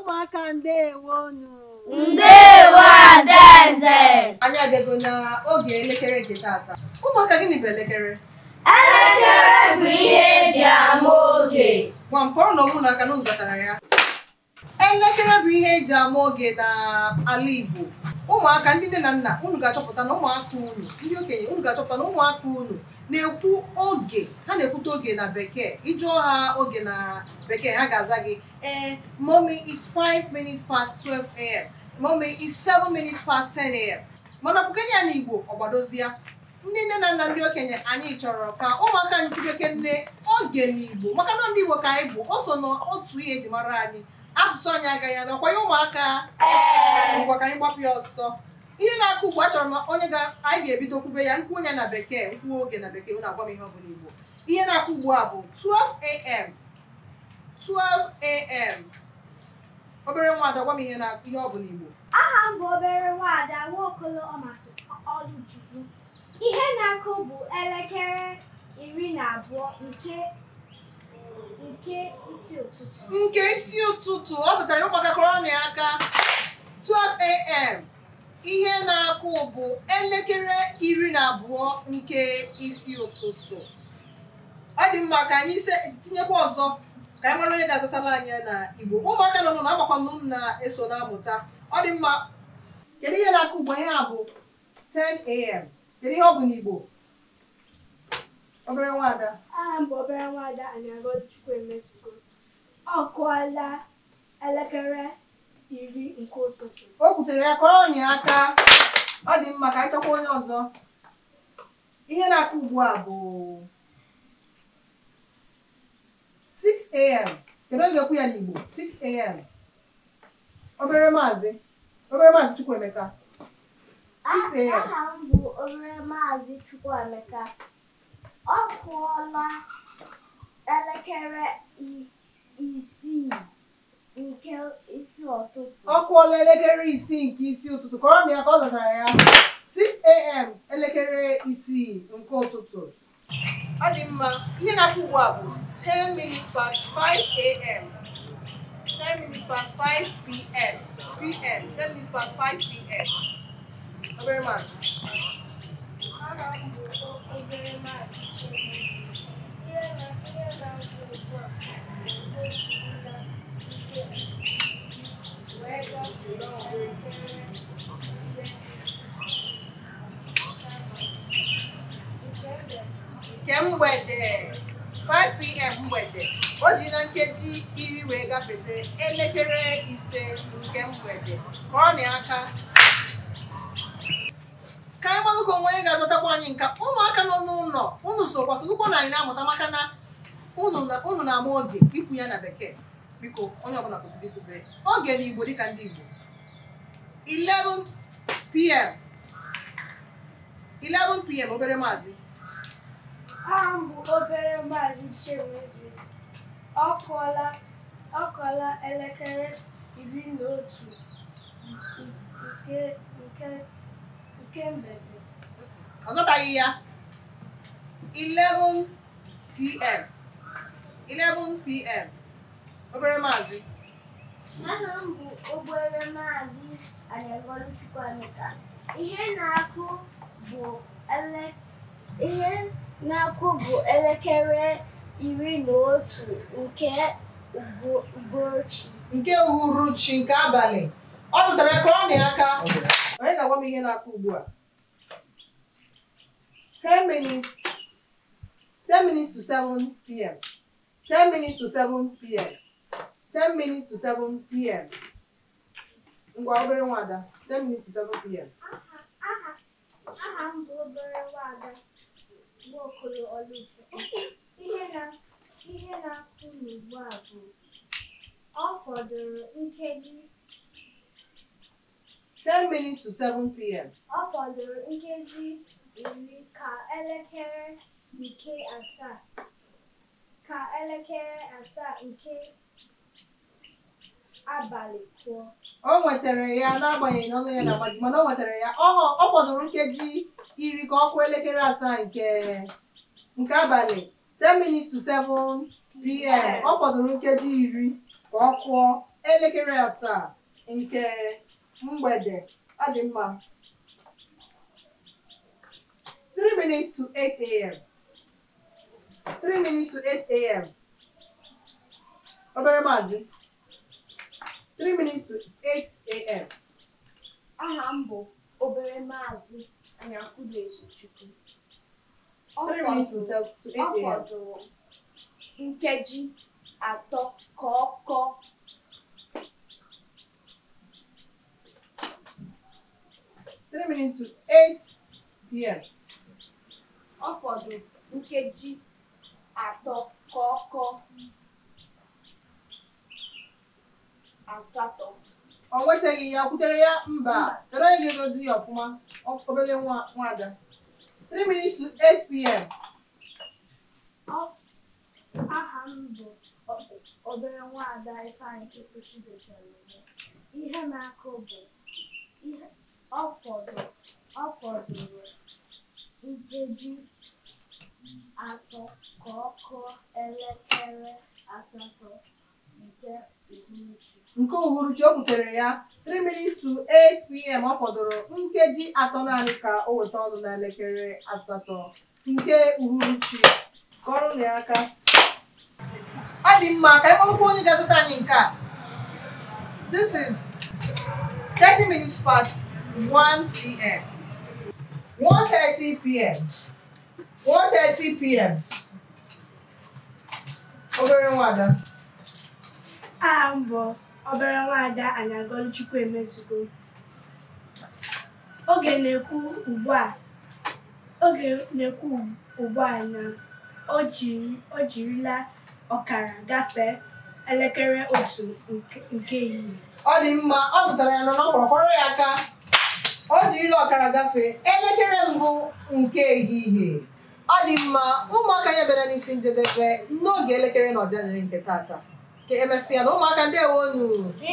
ụmụaka ndeewo nụ ndeewo adaeze anyị abịago n'oge elekere nke taata. ụmụaka gịnị bụ elekere elekere bụ ihe eji ama oge nwa nke ọrụ na n'ụzọ na ụzọtara ya elekere bụ ihe eji ama oge na ala Igbo ụmụaka ndị nne na nna unu ga-achọpụta na ụmụaka unu ndị okenye unu ga-achọpụta na ụmụaka unu na-ekwu oge ha na-ekwute oge na bekee ịjụọ ha oge na bekee ha ga-aza gị ee eh, mommy is 5 minutes past 12 a.m. mommy is 7 minutes past 10 a.m. mana ọpụkenye ya na Igbo ọgbadozie ndị nne na nna ndị okenye anyị chọrọ ka ụmụaka anyị tụbeke nne oge na Igbo maka na ndị Igbo ka anyị bụ o so n'otu ihe eji mara anyị asụsụ anyị agaghị ya na ọkwanye ụmụaka anyị gbapụ ya ọsọ ihe na-akụ ugbu achọrọ m onye ga anyị ga-ebido kwube ya nkwụ onye na bekee nkwuo oge na bekee na agwa m ihe ọ bụla igbo ihe na-akụ ugbu a bụ 12 am 12 am obere nwaada gwa m ihe na ihe ọ bụla igbo aha m bụ obere nwaada nwaokolo ọmasị ọlụchukwu ihe na-akụ bụ elekere iri na abụọ nke nke isi ụtụtụ nke isi ụtụtụ ọ zụtara ụmụaka kọrọ na aka 12 am ihe na-akụ bụ elekere iri na abụọ nke isi ụtụtụ ọ dị mma ka anyị tinyekwa ọzọ ka anyị mara onye ga-azụtara anyị na Igbo ụmụaka nọ na agbakwa m na-eso na-amụta ọ dị mma kedu ihe na-akụ ugbo ihe a bụ 10 a.m. kedu ihe ọ bụ n'Igbo obere nwada aha obere nwada Anyagọchukwu Emezugo ọ kụọla elekere iri nke ụtụtụ o kwutere ya ka ọ nye aka ọ dị mma ka anyị chọkwa onye ọzọ ihe na-aka ugbu a bụ 6am kedu oge okwu ya n'Igbo 6am obere maazị obere maazị Chukwu Emeka. am aha m bụ obere maazị Emeka, ọ kụọla elekere isii ọkụ ọla elekere isii nke isi ụtụtụ kọrọ m ya ka ọ zatara ya 6am elekere isii nke ụtụtụ ọ dị mma ihe na-akụ ugbu a bụ 10 minutes past 5am 10 minutes past 5 pm pm 10 minutes past 5 pm obere masị obere masị nke mgbede 5pm mgbede o ji na nkeji iri wee gafete elekere ise nke mgbede ka ọ na aka ka anyị onwe anyị ga-azatakwa anyị nka ụmụaka nọ n'ụlọ unu sokwasịkwụkwọ na anyị na-amụta maka na unu na-ama oge ikwu ya na bekee biko onye ọbụla kwesịrị ikwubere oge n'igbo dịka ndị igbo 11 pm 11 pm obere maazị aha m bụ obere maazị Chimezie ọkụọla ọkụọla elekere iri na otu nke nke nke mgbede ọ zọtaghị ya 11 pm 11 pm obere maazị m bụ maazị ihe na-akụ bụ elekere iri na otu nke nke uhuruchi nke abalị ọ zụtara krọnị aka onye ga-agwa m ihe na-akụ ugbu a 10 minutes 10 minutes to 7 p.m. ten minutes to seven p.m. ngwa obere nwada ten minutes to seven p.m. aha m obere nwada Nwaokolo Oluche ihe na-akụ n'ugbu a bụ ọ fọdụrụ nkeji ten minutes to seven p.m. ọ fọdụrụ nkeji iri ka elekere nke asaa ka elekere asaa nke o nwetara ya n'agbanyeghị na ọnụ ya na-agbaji mana o nwetara ya ọ fọdụrụ nkeji iri ka ọ elekere asaa nke nke abalị 10 minutes to 7 pm ọ fọdụrụ nkeji iri ka ọ kụọ elekere asaa nke mgbede ọ dị mma 3 minutes to 8 am 3 minutes to 8 am obere maazi. 3 minutes to 8 a.m. Aha m bụ obere maazị Anyakwudoezochukwu. Ọ fọdụrụ nkeji atọ ka ato kọọ three minutes to eight p.m. Ọ fọdụrụ nkeji atọ ka ọ kọọ asatọ o nwetaghị ya butere ya mba tere onye ga-edozi ya ọfụma obere nwaada 3 minutes to 8 pm aha m bụ obere nwaada Ifeanyị Chukwuchi detere ihe na-akụ bụ ọ fọdụrụ nkeji atọ ka ọ kụọ elekere asatọ nke uhuruchi o butere ya 3 minutes to 8 pm ọ fọdụrụ nkeji atọ naanị ka o weta ọnụ na elekere asatọ nke uhuruchi kọrọ ya aka ọ dị mma ka anyị kpọrọkwa onye ga-azụta anyị nke a this is 30 minutes past 1 pm 1:30 pm 1:30 pm obere nwada aha bụ obere nwada Anyagọlụ Chukwuemezugo oge na-ekwu ugbu a oge na-ekwu ugbu a na o jirila ọkara gafee elekere otu nke ehihie ọ dị mma ọ zụtara ya n'ọkpọrọkpọrọ ya aka o jirila ọkara gafee elekere mbụ nke ehihie ọ dị mma ụmụaka ya bịara n'isi njedebe n'oge elekere na ọjanịrị nke taata. ka emesịa na ụmụaka ndewo unu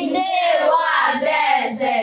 ndewo adeze